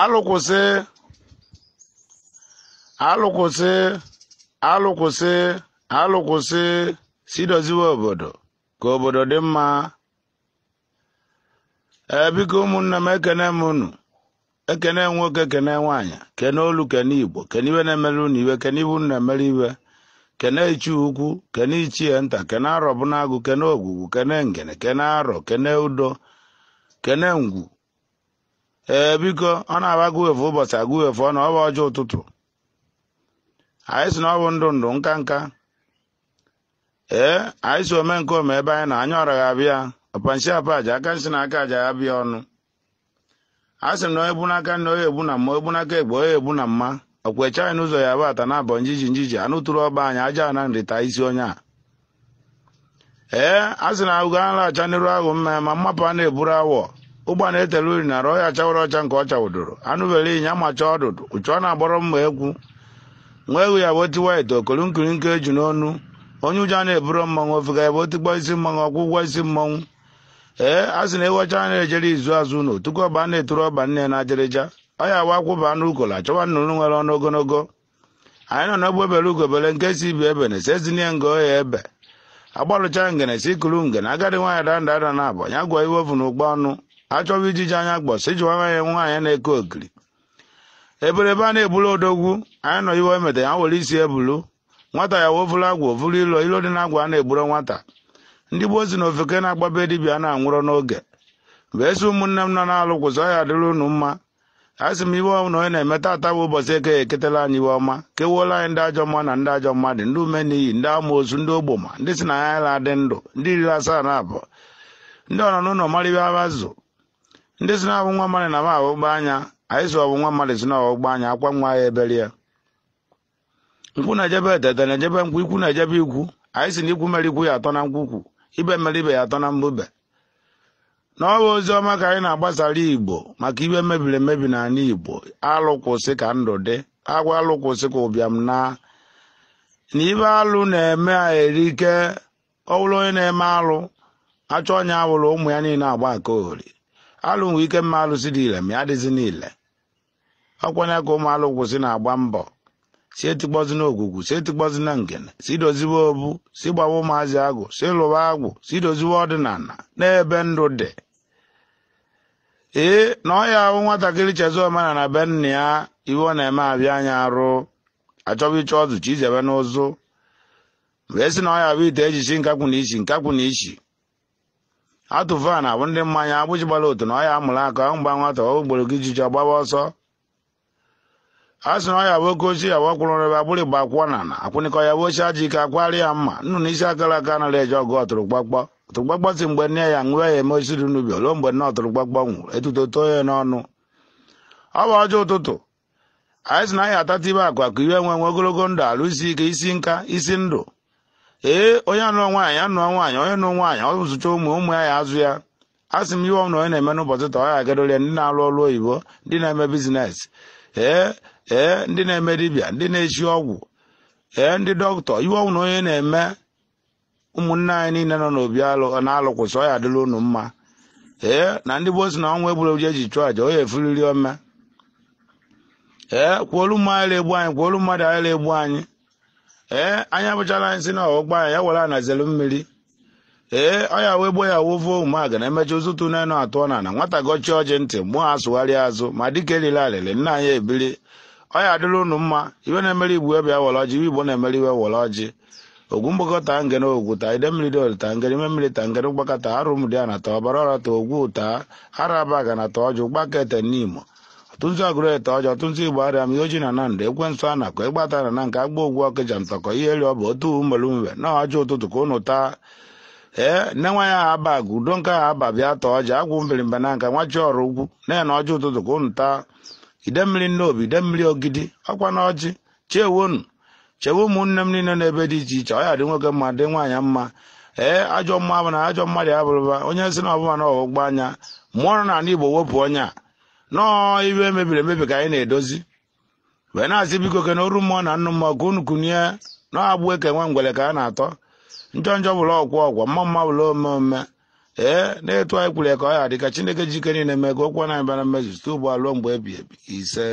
Alụkwụsị! Alụkwụsị! Alụkwụsị! Alụkwụsị! alụ si doziwe obodo ka obodo dị mma ebiko ụmụnne m ekene m unu ekene nwoke kene nwaanyị kene olu kene igbo kene iwe na-emere unu iwe kene ibu na-emere iwe kene ichi ukwu kene ichie nta kene arọ bụ kene ogwugwu kene ngene kene arọ kene udo kene ngwu ee biko ọ na-agba guwefu ụbọchị aguwefu ọ na ọ bụ ọjọọ ụtụtụ anyị si na ọ bụ ndụ ndụ nka nka ee anyị si ome nke ome ebe anyị na anya ọra abịa ọpanshi apa aja aka nsị na aka aja ya bịa ọnụ a sị na onye bu na nna onye egbu na mma egbu n'aka egbe onye egbu na mma okwecha anyị n'ụzọ ya bụ ata na abọ njiji njiji anụ tụrụ ọgba anyị aja na nrita isi onye a ee a sị na agụgo a nalacha n'iru ahụ mma ma mmapụ a na-eburu awọ ụgbọ na-etele uri nara ọya chawara ọcha nke ọcha chawụdoro anụbere ịnya macha ọdụdụ uchu ọ na-agbọrọ mma egwu nwa ewu ya bụ tiwa ite okolu nke eju n'ọnụ onye ụjọ na eburo mmanwụ ofega ya bụ otigbo isi mmanwụ ọkwụ ụgwọ isi mmanwụ ee a sị na ewecha a na-ejere izu azụ ụlọ tuku ọba a na-eturu ọba nne na-ajerịja ọ ya wa akwụba anụ ukola chọwa nnụnụ nwere ọnụ ogologo anyị nọ n'ogbe bere ugobere nke si ibi ebe na sezinie ngo ya ebe agbalụcha ngene si ikuru ngene agadi nwaanyị danda ada na abụ ya gwa iwe ovu na ụgba ọnụ achọwa ijiji anya gbọsị ijiwa nwa ya nwaanyị na-eke okiri eberebe a na-ebulu odogwu anyị nọ iwe emeta ya were isi ebulu nwata ya wovulu agwa ovulu ilo ilo dị na agwa a na-egburo nwata ndị gboo si na ofeke na-agbabe dibịa na-anwụrọ n'oge mgbe esi ụmụnne m nọ na-alụ kwụsọ ya dịrị unu mma a sị m iwe na onye na-emeta ata bụ ụbọchị eke eketela anyị iwe ọma kewuola anyị ndị ajọ mma na ndị ajọ mmadụ ndị ume n'iyi ndị amoosu ndị ogboma ndị si na ya la adị ndụ ndị iri asaa na abụọ ndị ọnọ n'ụlọ marịba abazụ ndị si na abụ nwa mmadụ na m anya anyị si ọwụ nwa mmadụ si na ọghọgbu anya akwa nwa ya ebere ya na-ejebe tete na-ejebe nkwụ ikwu na-ejebe ikwu anyị si na ikwu mere ikwu ya atọ na nkwukwu ibe mere ibe ya atọ na mbube na ọwa ozi ọma ka anyị na-agbasara igbo maka ibe mebiri emebi n'ala igbo alụ kwụsị ka ndụ dị agwa alụkwụsị ka ụbịam na na ibe alụ na-eme a ike ọ bụrụ onye na-eme alụ achọ onye awụrụ ụmụ ya niile agba aka ori alụ nwe ike mma alụsị dị ile ma ya dịzi niile ọkwanye ka ụmụ alụ kwụsị na-agba mbọ si etikpọzi na ogwugwu si etikpọzi na ngene si doziwe obu si gbawa ụmụazị agwụ si lụwa agwụ si doziwe ọdịnala n'ebe ndụ dị ee na ọ ya ahụ nwatakịrị chezi omena na be nna ya iwe ọ na-eme abịa anya arụ achọba ịchọ ọzụ chi izebe n'ụzụ mgbe esi na ọ ya bụ ite ejichi nkakwụ na ichi nkakwụ na ichi na- abụ ndị mmanya agbụji gbara otu na ọya mụrụ aka mgba nwata ogboro gị jiji ọgbaba ọsọ a sị na ọya bụ oke ochie yawa kwụrụ ebe agbụrụ igba akwụkwọ na na akwụnịkọ ya bụ ochie aji ike akwari ya mma nnu na isi akara aka anaghị eji ọgụ ọtụrụgbakpọ ọtụrụgbakpọ si mgbe nne ya nwee ya eme osiri n'ubi ruo mgbe nne ọtụrụgbakpọ nwụrụ etuto too ya n'ọnụ ọ bụ ọjọọ ụtụtụ anyị sị na anyị atata ibe akụ akụ iwe nwe nwe ogologo ndụ alụsi ike isi nka isi ndụ ee onye anụọ nwaanyị anụọ nwaanyị onye nụ nwaanyị ọ zụcha ụmụ ụmụ ya ya azụ ya asị sị m ihe na onye na-eme n'ụbọchị taa ọ ya ndị na-alụ ọrụ oyibo ndị na-eme biznes ee ee ndị na-eme dibịa ndị na-echi ọgwụ ee ndị dọkịta ihe ọnwụ na onye na-eme ụmụnne anyị niile nọ n'obi alụ na-alụkwụsị ọ ya adịla unu mma ee na ndị bụ si na ọnwa egbureji eji chụọ aja onye efuriri ome ee kwuolu mmadụ egbu anyị kwuolu mmadụ anyị egbu anyị ee eh, anya abụchala anyị si na ọgbọ anyị ya were anazelu mmiri ee eh, ọya wee gbo ya wovo ụmụaga na emecha ụzụtụ n'enu atụọ na na nwata gochi ọjị ntị mmụọ asụgharịa azụ ma dịka elile arịrị nna anyị ebili ọya adịrị unu mma iwe na-emere igbu ebe were ọjị iwe igbo na-emere iwe were ọjị ogwu mgbakọta ngere ogwu ta ide mmiri dol ta ngere ime mmiri ta ngere mgbakọta arụ mdi a na ta ọbara ọra ta ogwu ta araba ga na ta ọjị ụgbakete n'imo ọtụtụ agụreta ọjọ ọtụtụ igbo arịa mihe oji na nandị ekwensụ a na-akọ e na na nke agba ogwu ọkịja ntọkọ ihe eri ọ bụ otu umelumbe na ọjọ ụtụtụ ka ụnụ taa ee nne nwa ya ha aba gụ udo nke aha aba bịa tọọ ọja agwụ mbirimba na nka nwa chi ọrụ ugwu na ya na ọjọ ụtụtụ ka ụnụ taa ide mmiri obi ide mmiri ogidi ọkwa na ọjị chewonu chewe ụmụnne m niile n'ebe dị iche iche ọ ya dị nwoke mma dị nwaanyị mma ee ajọ mma bụ na ajọ mmadụ abụrụba onye si na ọbụma na anya mmụọ na n'ala igbo wepụ onye a nọọ ibe mebiri emebi ka anyị na-edozi wee na-asị biko ke na oru mmụọ na nnụ mmụọ ka unu kunye na-agbụ eke nwe ngwele ka a na-atọ njọ njọ bụla ọgwụ ọgwọ mma mma bụla ome ome ee na-etu anyị kwuru ka ọ ya ka chineke jike niile mee ka okwu na-abịa na mmezu stoo ugbu a ruo mgbe ebi ebi ise